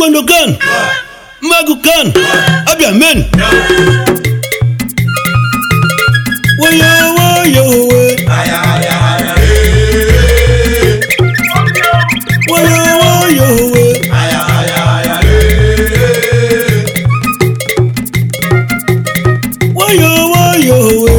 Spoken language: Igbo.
taekwondo kan Magu kan abịa men woyo woyo we woyo woyo we woyo